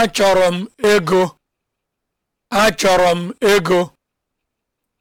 Achọrọ m ego. Achọrọ m ego.